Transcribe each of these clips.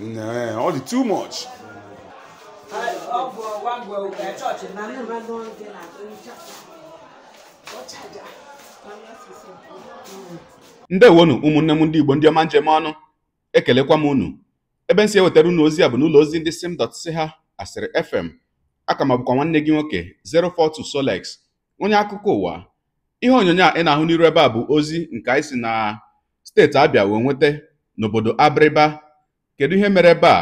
Nah, ọ dị too much. ndị ndewonu ụmụnne m ndị Igbo ndị ọma njem ọnụ ekelekwa m unu ebe m si ewetara unu ozi a bụ n'ụlọ ozi ndị ha asịrị fm aka ma bụkwa nwanne gị nwoke 042 Solex onye akụkọ ụwa ihe onyonyo a ị na-ahụ n'iru ebe a bụ ozi nke anyị si na steeti Abịa wee nweta n'obodo Abịrịba Kedu ihe mere ebe a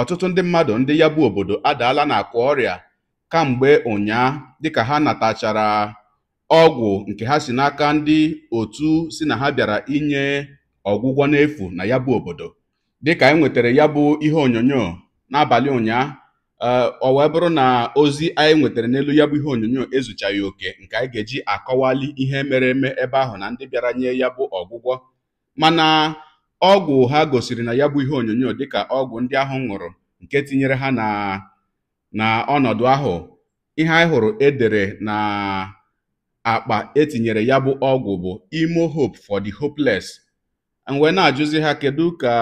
ọtụtụ ndị mmadụ ndị ya bụ obodo adaala n'akwa ọrịa kamgbe ụnyaa dịka ha natachara ọgwụ nke ha si n'aka ndị otu si na ha bịara inye ọgwụgwọ n'efu na ya bụ obodo dịka e nwetara ya bụ ihe onyonyo n'abalị ụnyaa eh, ọ wee bụrụ na ozi anyị nwetara n'elu ya bụ ihe onyonyo ezuchaghị oke nke anyị ga-eji akọwali ihe mere eme ebe ahụ na ndị bịara nye ya bụ ọgwụgwọ mana ọgwụ ha gosiri na ya bụ ihe onyonyo dịka ọgwụ ndị ahụ ṅụrụ nke tinyere ha na ọnọdụ ahụ ihe anyị hụrụ edere na akpa etinyere ya bụ ọgwụ bụ imo hope for the hopeless wee na-ajụzi ha kedu ka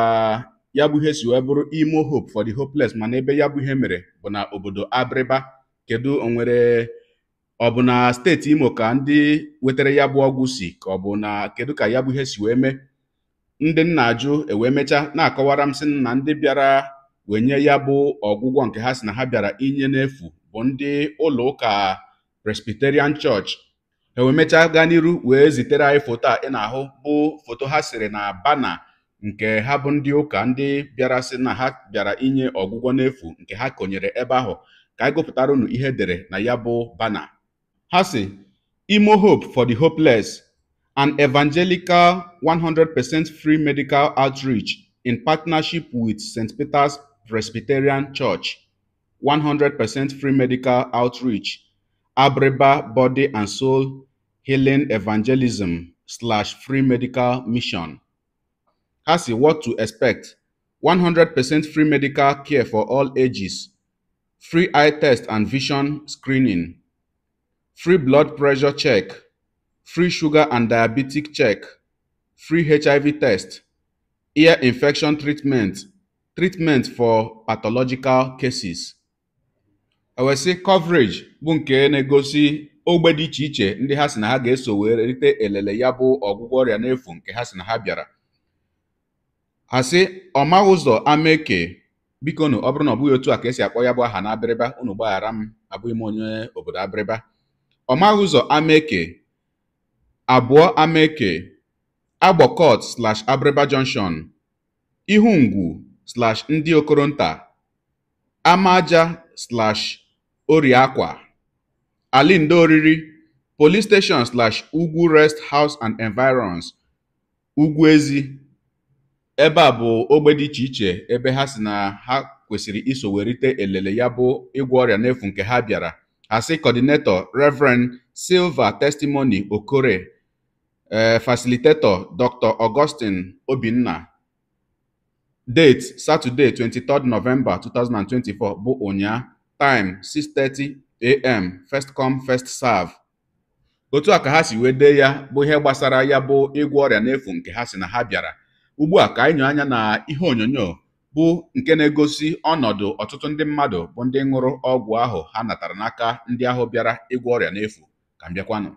ya bụ ihe si wee bụrụ imo hope for the hopeless mana ebe ya bụ ihe mere bụ na obodo Abịrịba kedu onwere ọ bụ na steeti Imo ka ndị wetara ya bụ ọgwụ si ka ọ na kedu ka ya bụ ihe si wee mee ndị nna ajụ ewee mechaa na-akọwara m sị na ndị bịara wenye ya bụ ọgwụgwọ nke ha si na ha bịara inye n'efu bụ ndị ụlọ ụka Presbyterian Church ewee mechaa gaa n'iru wee zitere anyị foto a ị na-ahụ bụ foto ha siri na bana nke ha bụ ndị ụka ndị bịara sị na ha bịara inye ọgwụgwọ n'efu nke ha konyere ebe ahụ ka anyị gụpụtara unu ihe e dere na ya bụ bana ha si Imo Hope for the Hopeless an evangelical 100% free medical outreach in partnership with St. Peter's Presbyterian Church, 100% free medical outreach, Abreba Body and Soul Healing Evangelism slash free medical mission. Hasi, what to expect? 100% free medical care for all ages, free eye test and vision screening, free blood pressure check, free sugar and diabetic check, free HIV test, ear infection treatment, treatment for pathological cases. ewesị coverage bụ nke na-egosi ogbe dị iche iche ndị ha si na ha ga-eso wee rite elele ya bụ ọgwụgwọ ọrịa n'efu nke ha si na ha bịara asị ọma ụzọ ameke biko na ọ na ọ bụghị otu a ka esi akpọ ya bụ aha na unu gbaghara m abụghị m onye obodo abịrịba ọma ụzọ ameke abụọ Ameke, Agbọkọt/Abịrịba Junction, Ihungwu/Ndị Okoronta, amaja alị Alindo Oriri, Police Station/Ugwu Rest House and Environs, ugwu ezi Ebe a bụ ogbe dị iche iche ebe ha si na ha kwesịrị iso werite elele ya bụ ịgwọ ọrịa n'efu nke ha bịara asị kọdinetọ Reverend Silva Testimony Okore Eh, facilitator Dr. Augustine Obinna. Date Saturday 23 November 2024 bụ ụnya. Time 6:30 a.m. First come first serve. Otu a ka ha si wee dee ya bụ ihe gbasara ya bụ ịgwọ ọrịa n'efu nke ha si na ha bịara. Ugbu a ka anyị anya na ihe onyonyo bụ nke na-egosi ọnọdụ ọtụtụ ndị mmadụ bụ ndị ṅụrụ ọgwụ ahụ ha natara n'aka ndị ahụ bịara ịgwọ ọrịa n'efu ka m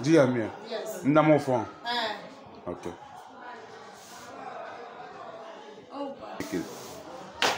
Dia minha? Yes. Não dá meu fone? Eh. É. Ok. Opa. Oh,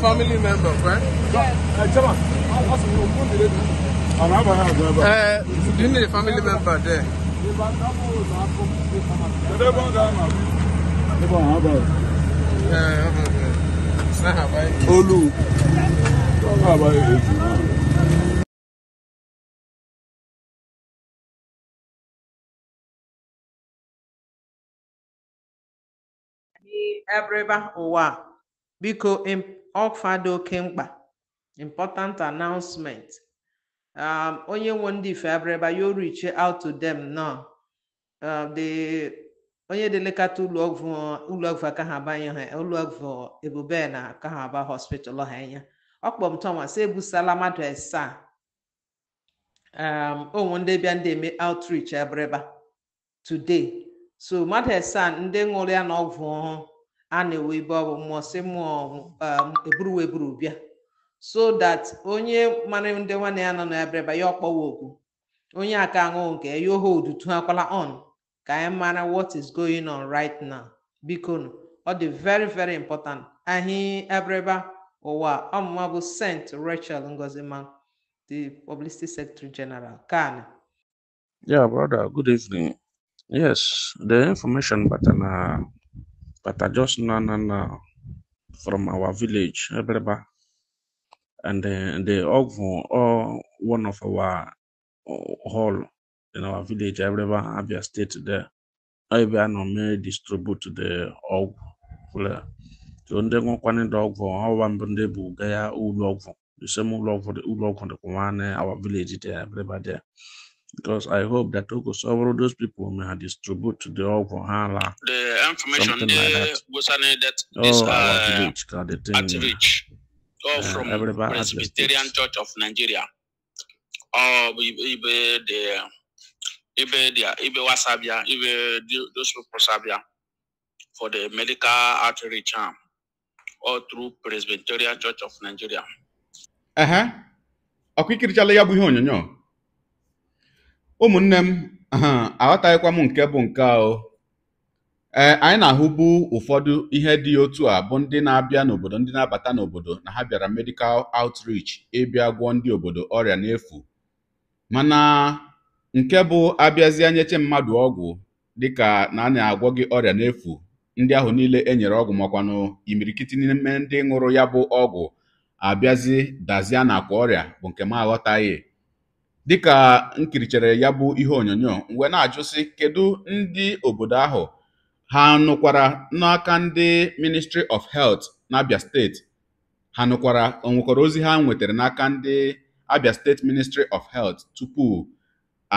family member, right? Yes. Uh, you need a family member there. Olu. Ebe ụwa biko ọkwa dị oke mkpa important announcement um, onye nwe ndị ife abịrịba yo reach out to them now uh, the onye delekata ụlọọgwụ ụlọọgwụ aka ha abanye ha ụlọọgwụ ebube na aka ha aba hospital ha anya ọkpọm thomas ebusala mmadụ asaa um, onwe ndị bịa ndị eme outreach abịrịba today so mmadụ asaa ndị ṅụrụ ya na ọgwụ ọhụụ a na-ewe ibe ọ bụ mmụọ si mmụọ um, eburu eburu bịa so that onye mara ndị nwanne ya nọ na ya bịara ya ọkpọwa okwu onye aka aṅụghị nke ya yohe odutu akwala on ka anyị mara what is going on right now biko nụ ọ dị very very important ahị ebreba ụwa ọmụma bụ St. Rachel Ngozima the publicity secretary general kan yeah brother good evening yes the information batana But I just know now, now from our village, Ebreba, eh, and the, the Ogvon or one of our uh, hall in our village, Ebreba, eh, Abia State there, Abia no may distribute the Og. So ndị nwekwana ndị ọgwụ ọwa mbụ ndị bụ ga ya ụlọ ọgwụ the same ụlọ ọgwụ ụlọ ọgwụ the nwanne eh, our village there Ebreba there because I hope that Oko oh, Soworo, those people may have distribute to the all for The information Something they like that. was that oh, this oh, uh, reach, God, the reach, all uh, from Presbyterian Church of Nigeria. Oh, ibe the ibe the ibe wasabia ibe those people sabia for the medical outreach arm, um, all through Presbyterian Church of Nigeria. Uh huh. Akwikirichala ya bụ ihe onyonyo. ụmụnne m aghọtaghịkwa m nke bụ nke ahụ ee anyị na-ahụbu ụfọdụ ihe dị otu a bụ ndị na-abịa n'obodo ndị na-abata n'obodo na ha bịara medical outreach ịbịa gwọọ ndị obodo ọrịa n'efu mana nke bụ abịazịa nyeche mmadụ ọgwụ dịka na a na-agwọ gị ọrịa n'efu ndị ahụ niile e nyere ọgwụ makwanụ imirikiti n'ime ndị ṅụrụ ya bụ ọgwụ abịazi dazie na kwa ọrịa bụ nke m aghọtaghị Dịka m ya bụ ihe onyonyo mgbe na-ajụ sị kedụ ndị obodo ahụ ha nụkwara n'aka ndị Ministry of Health n'Abia steeti ha nụkwara onwekwara ozi ha nwetara n'aka ndị Abia steeti Ministry of Health tupu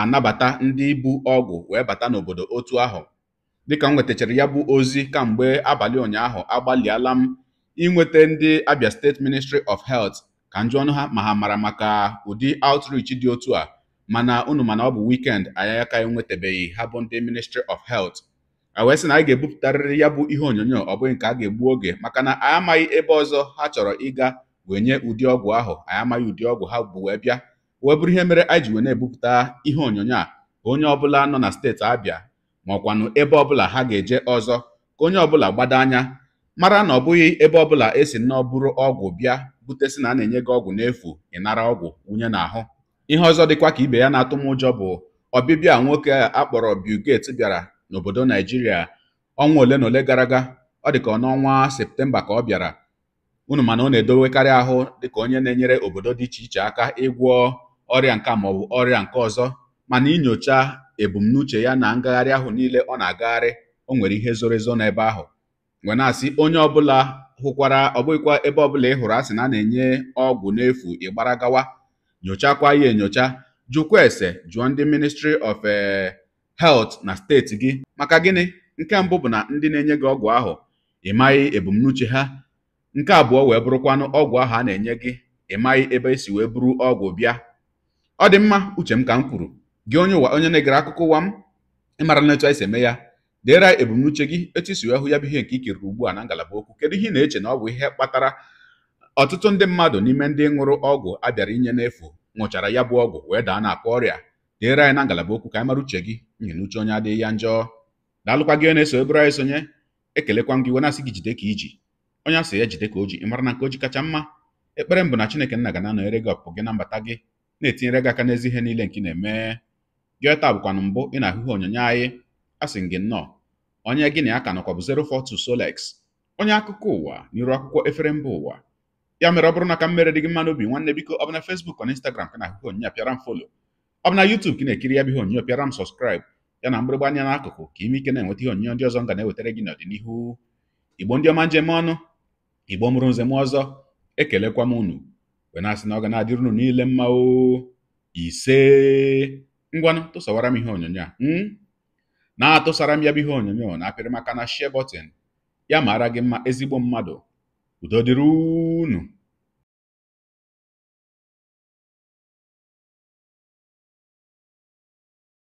anabata ndị bu ọgwụ wee bata n'obodo otu ahụ dịka m nwetachara ya bụ ozi kamgbe abalị ụnyaahụ agbalịala m inweta ndị Abia steeti Ministry of Health ka njụ ọnụ ha ma ha mara maka ụdị outreach dị otu a mana unu mana ọ bụ weekend anyị aka enwetabeghị ha bụ ndị ministry of health wee sị na anyị ga-ebupụtarịrị ya bụ ihe onyonyo ọ bụghị nke a ga-egbu oge maka na anyị amaghị ebe ọzọ ha chọrọ ịga wee nye ụdị ọgwụ ahụ anyị amaghị ụdị ọgwụ ha bụ wee bịa wee bụrụ ihe mere anyị ji wee na-ebupụta ihe onyonyo a onye ọbụla nọ na steeti Abịa ma ọkwanụ ebe ọbụla ha ga-eje ọzọ ka onye ọbụla gbado anya mara na ọ bụghị ebe ọbụla esi nnọọ bụrụ ọgwụ bịa bukwute sị na a na-enye gị ọgwụ n'efu ị nara ọgwụ wunye n'ahụ ihe ọzọ dịkwa ka ibe ya na-atụ m ụjọ bụ ọbịbịa nwoke a kpọrọ Bill bịara n'obodo Naijiria ọnwa ole na ole gara aga ọ dị ka n'ọnwa Septemba ka ọ bịara unu mana ọ na-edowekarị ahụ dịka onye na-enyere obodo dị iche iche aka ịgwọ ọrịa nka maọbụ ọrịa nke ọzọ mana inyocha ebumnuche ya na ngagharị ahụ niile ọ na-agagharị o nwere ihe zoro ezo n'ebe ahụ wee na-asị onye ọbụla hụkwara ọbụghịkwa ebe ọbụla ị hụrụ asị na a na-enye ọgwụ n'efu ịgbara gawa nyochakwa ya enyocha jụkwa ese jụọ ndị ministry of eh, health na steeti gị maka gịnị nke mbụ bụ na ndị na-enye gị ọgwụ ahụ ị maghị ebumnuche ha nke abụọ wee bụrụkwanụ ọgwụ ahụ a na-enye gị ị maghị ebe esi wee buru ọgwụ bịa ọ dị mma uche m ka m kwuru gị onye ụwa onye na-egere akụkọ ụwa m ị na etu anyị si eme ya dere ebumnuche gị etu isi wee hụ ya bụ ihe nke ikiriri ugbu a na ngalaba okwu kedu ihe ị na-eche na ọ bụ ihe kpatara ọtụtụ ndị mmadụ n'ime ndị ṅụrụ ọgwụ a bịara inye n'efu ṅụchara ya bụ ọgwụ wee daa na-akpa ọrịa dere anyị na ngalaba okwu ka anyị mara uche gị nyi na uche onye adịghị ya njọ daalụkwa gị na-eso ebere anyị sonye ekelekwa gị wena asị gị jide ka iji onye asị ya jide ka o ji ị mara na nke o ji kacha mma ekpere m bụ na chineke nna ga na-anọnyere gị ọpụpụ gị na mbata gị na-etinyere gị aka n'ezi ihe niile nke ị na-eme gị taa mbụ ị na-ahụ onyonyo anyị asị gị nnọọ onye gịnị aka nọkwa bụ 042 Solex onye akụkọ ụwa n'iru akwụkwọ efere mba ụwa ya mere ọ bụrụ na ka m mere dị gị mma n'obi nwanne biko ọ bụ na Facebook na Instagram ka na-akụkọ onyinye apịara m folo ọ bụ na YouTube ka na-ekiri ya bụ ihe onyinye pịara m sọskraịbụ ya na mgbịrịgba anya n'akụkụ ka ime ike na-enweta ihe onyinye ndị ọzọ nga na-ewetara gị n'ọdịnihu igbo ndị ọma njem ọnụ igbo mụrụ m ọzọ ekelekwa m unu wee na-asị na ọ ga na-adịrị unu niile mma o ise ngwanụ tụsawara m ihe onyonyo a hmm? na-atụsara m ya bụ ihe onyonyo na apịrị maka na share button ya mara gị mma ezigbo mmadụ udo unu